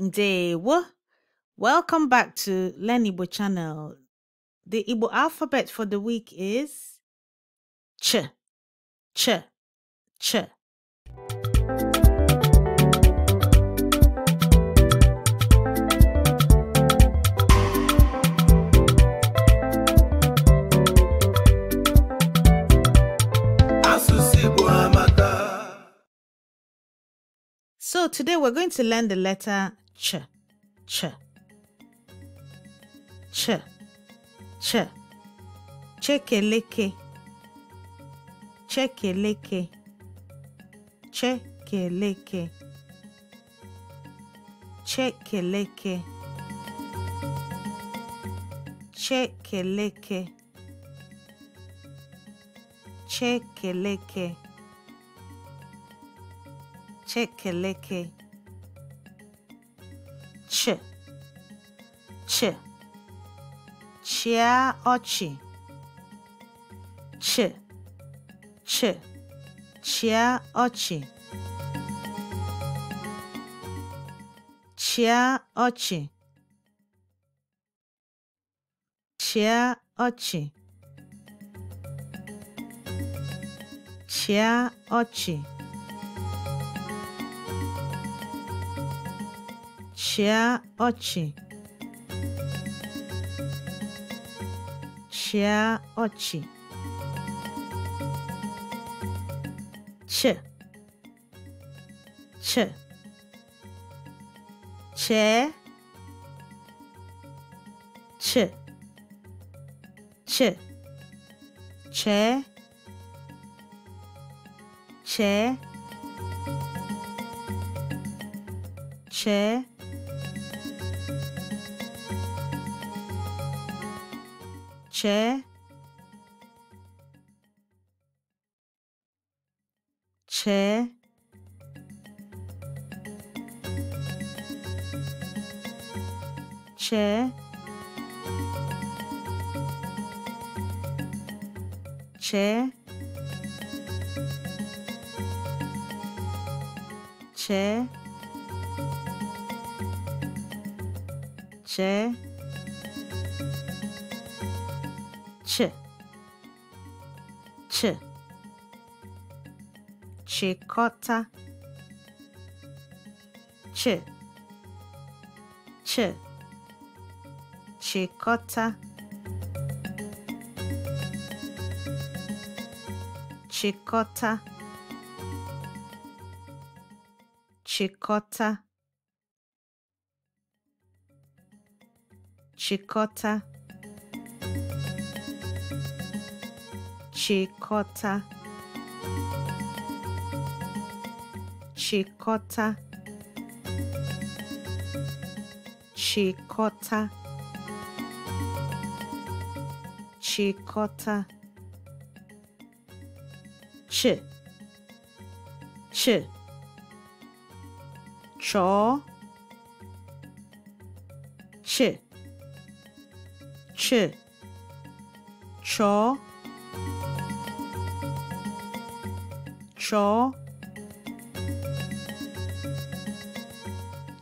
Ndewo. Welcome back to Learn Igbo channel. The Igbo alphabet for the week is Ch, Ch, Ch. So today we're going to learn the letter ch, ch, ch, ch, chekeleke, chekeleke, chekeleke, chekeleke, chekeleke, chekeleke, chekeleke. ch ch chịa ọchị ch ch chịa ọchị chịa ọchị chịa ọchị chịa ọchị 치아 어치 치아 어치 치치 체, 치, 치, 체, 체, 체, chair chair chair chair chair chair ch ch chịkọta ch ch chịkọta chịkọta chịkọta chịkọta Chikota. Chikota. Chikota. Chikota. Ch. Ch. Chaw. Ch. Ch. Chaw. 乔，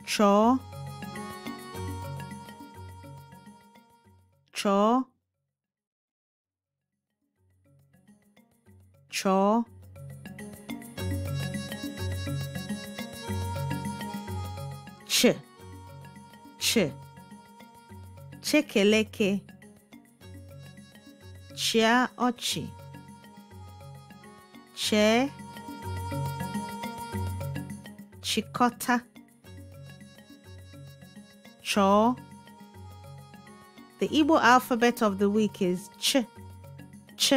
乔，乔，乔，切，切，切，勒，切，切，切。chịkọta cho the Igbo alphabet of the week is ch ch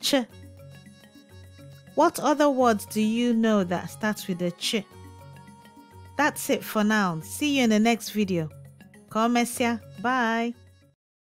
ch what other words do you know that starts with a ch that's it for now see you in the next video Come, Messia. Bye.